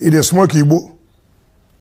ị dị smoke igbo